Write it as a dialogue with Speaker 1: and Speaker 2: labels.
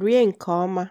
Speaker 1: Rie nke ọma